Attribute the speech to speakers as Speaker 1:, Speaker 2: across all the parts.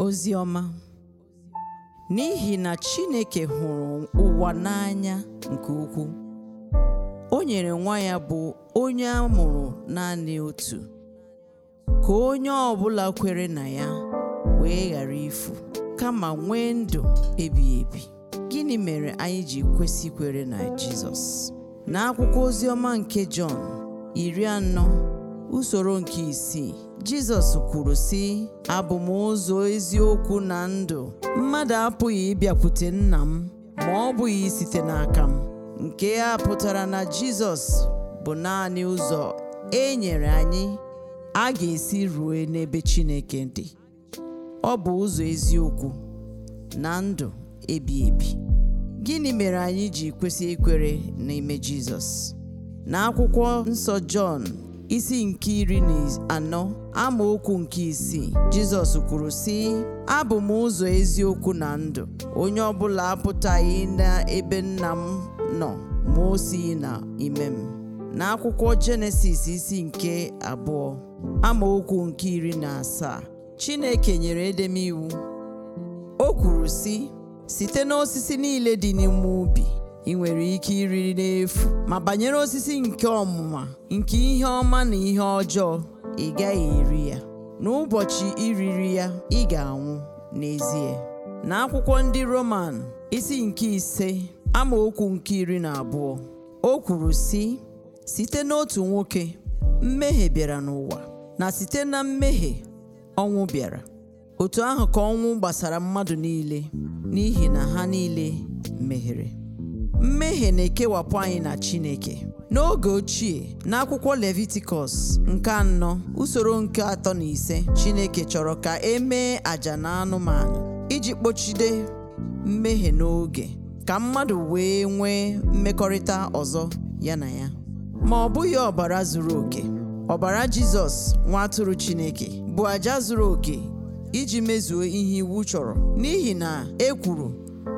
Speaker 1: ozi n'ihi na Chineke hụrụ ụwa n'anya nke ukwuu o nyere nwa ya bụ onye a mụrụ naanị otu ka onye ọbụla kwere na ya wee ghara ifu kama nwee ndụ ebighị ebi gịnị mere anyị ji kwesị kwere na Jizọs n'akwụkwọ oziọma nke Jọn iri anọ usoro nke isii Jizọs kwuru sị abụ m ụzọ eziokwu na ndụ mmadụ apụghị ịbịakwute nna m ma ọ bụghị site n'aka m nke a pụtara na Jizọs bụ naanị ụzọ e nyere anyị a ga-esi ruo n'ebe Chineke dị ọ bụ ụzọ eziokwu na ndụ ebi ebi gịnị mere anyị ji kwesị ikwere n'ime Jizọs n'akwụkwọ nsọ Jọn isi nke iri na anọ ama okwu nke isii jizọs kwuru sị abụ m ụzọ eziokwu na ndụ onye ọ ọbụla apụtaghị n'ebe nna m nọ ma o na ime m n'akwụkwọ jenesis isi nke abụọ amaokwu nke iri na asaa chineke nyere edem o kwuru sị site n'osisi niile dị n'ime ubi ị nwere ike iriri n'efu ma banyere osisi nke ọmụma nke ihe ọma na ihe ọjọọ ị gaghị eri ya n'ụbọchị iriri ya ị ga-anwụ n'ezie na akwụkwọ ndị Roman isi nke ise ama okwu nke iri na abụọ o kwuru sị site n'otu nwoke mmehie bịara n'ụwa na site na mmehie ọnwụ bịara otu ahụ ka ọnwụ gbasara mmadụ niile n'ihi na ha niile meghere." mmehie na-ekewapụ anyị na Chineke n'oge ochie n'akwụkwọ Leviticus nke anọ usoro nke atọ na ise Chineke chọrọ ka e mee àjà na anụmanụ iji kpochide mmehie n'oge ka mmadụ wee nwee mmekọrịta ọzọ ya na ya ma ọ bụghị ọbara zuru oke ọbara Jizọs nwa atụrụ Chineke bụ àjà zuru oke iji mezuo ihe iwu chọrọ n'ihi na e kwuru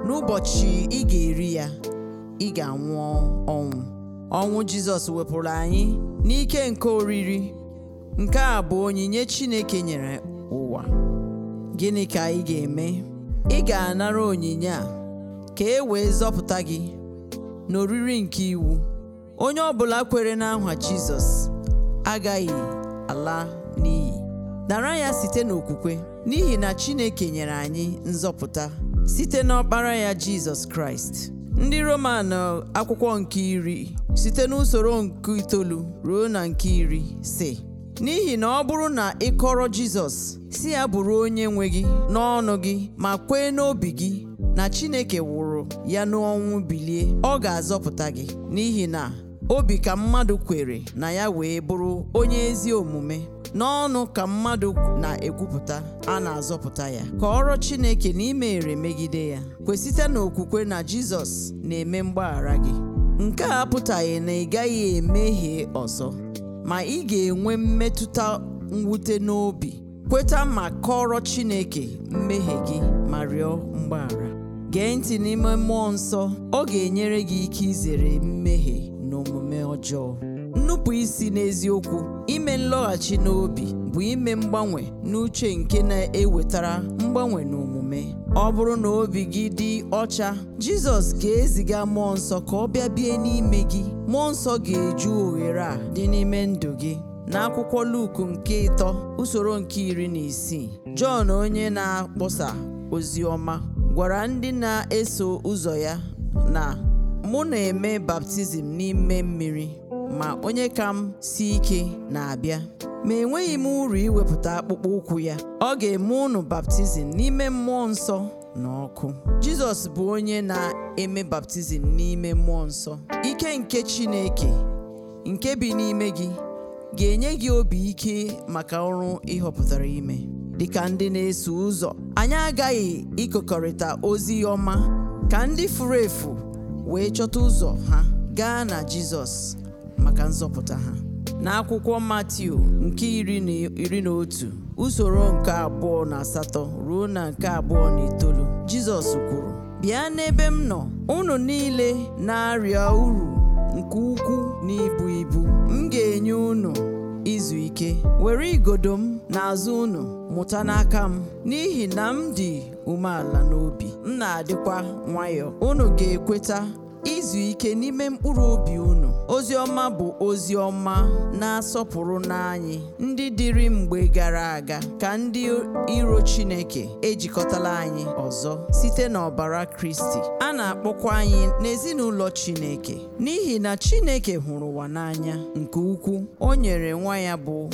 Speaker 1: n'ụbọchị ị ga-eri ya ị ga-anwụ ọnwụ ọnwụ jizọs wepụrụ anyị n'ike nke oriri nke a bụ onyinye chineke nyere ụwa gịnị ka ị ga-eme ị ga-anara onyinye a ka e wee zọpụta gị n'oriri nke iwu onye ọ bụla kwere n'aha jizọs agaghị ala n'iyi nara ya site n'okwukwe n'ihi na chineke nyere anyị nzọpụta site n'ọkpara ya jizọs kraịst ndị roman akwụkwọ nke iri site n'usoro nke itoolu ruo na nke iri si n'ihi na ọ bụrụ na ị kọrọ jizọs si ya bụrụ onye nwe gị n'ọnụ gị ma kwee n'obi gị na chineke wụrụ ya n'ọnwụ bilie ọ ga-azọpụta gị n'ihi na obi ka mmadụ kwere na ya wee bụrụ onye ezi omume n'ọnụ ka mmadụ na-ekwupụta a na-azọpụta ya kọọrọ Chineke na imere megide ya kwesịte n'okwukwe na Jizọs na-eme mgbaghara gị nke a apụtaghị na ị gaghị emehie ọzọ ma ị ga-enwe mmetụta mwute n'obi kweta ma kọọrọ Chineke mmehie gị ma rịọ mgbaghara gee ntị n'ime mmụọ nsọ ọ ga-enyere gị ike izere mmehie n'omume ọjọọ nnupụ isi n'eziokwu ime nlọghachi n'obi bụ ime mgbanwe n'uche nke na-ewetara mgbanwe n'omume ọ bụrụ na obi gị dị ọcha Jizọs ga-eziga mmụọ nsọ ka ọ bịa bie n'ime gị mmụọ nsọ ga-eju oghere a dị n'ime ndụ gị n'akwụkwọ Luku nke ịtọ usoro nke iri na isii Jọn onye na-akpọsa ozi ọma gwara ndị na-eso ụzọ ya na mụ na-eme baptizim n'ime mmiri ma onye ka m si ike na-abịa ma enweghị m uru iwepụta akpụkpọ ụkwụ ya ọ ga-eme unu baptizim n'ime mmụọ nsọ na ọkụ jizọs bụ onye na-eme baptizim n'ime mmụọ nsọ ike nke chineke nke bi n'ime gị ga-enye gị obi ike maka ọrụ ịhọpụtara ime dịka ndị na-eso ụzọ anyị agaghị ịkọkọrịta ozi ọma ka ndị furu efu wee chọta ụzọ ha gaa na Jizọs maka nzọpụta ha n'akwụkwọ Matiu nke iri na otu usoro nke abụọ na asatọ ruo na nke abụọ na itoolu Jizọs kwuru bịa n'ebe m nọ unu niile na-arịa uru nke ukwuu na ibu ibu m ga-enye unu izu ike were igodo m n'azụ unu mụta n'aka m n'ihi na m dị umeala n'obi m na-adịkwa nwayọọ unu ga-ekweta izu ike n'ime mkpụrụ obi unu ozi ọma bụ ozi ọma na-asọpụrụ n'anyị ndị dịrị mgbe gara aga ka ndị iro Chineke ejikọtala anyị ọzọ site n'ọbara Kristi a na-akpọkwa anyị n'ezinụlọ Chineke n'ihi na Chineke hụrụ ụwa n'anya nke ukwu. o nyere nwa ya bụ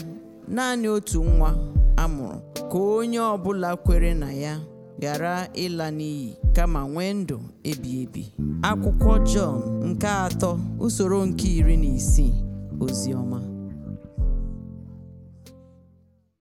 Speaker 1: naanị otu nwa amụrụ ka onye ọ bụla kwere na ya gara ịla n'iyi kama nwee ndụ ebi ebi akwụkwọ Jọn nke atọ usoro nke iri na isii ozi ọma